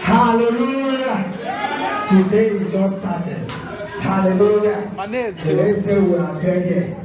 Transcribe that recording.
Hallelujah. Today is just started. Hallelujah. Today's day we are here.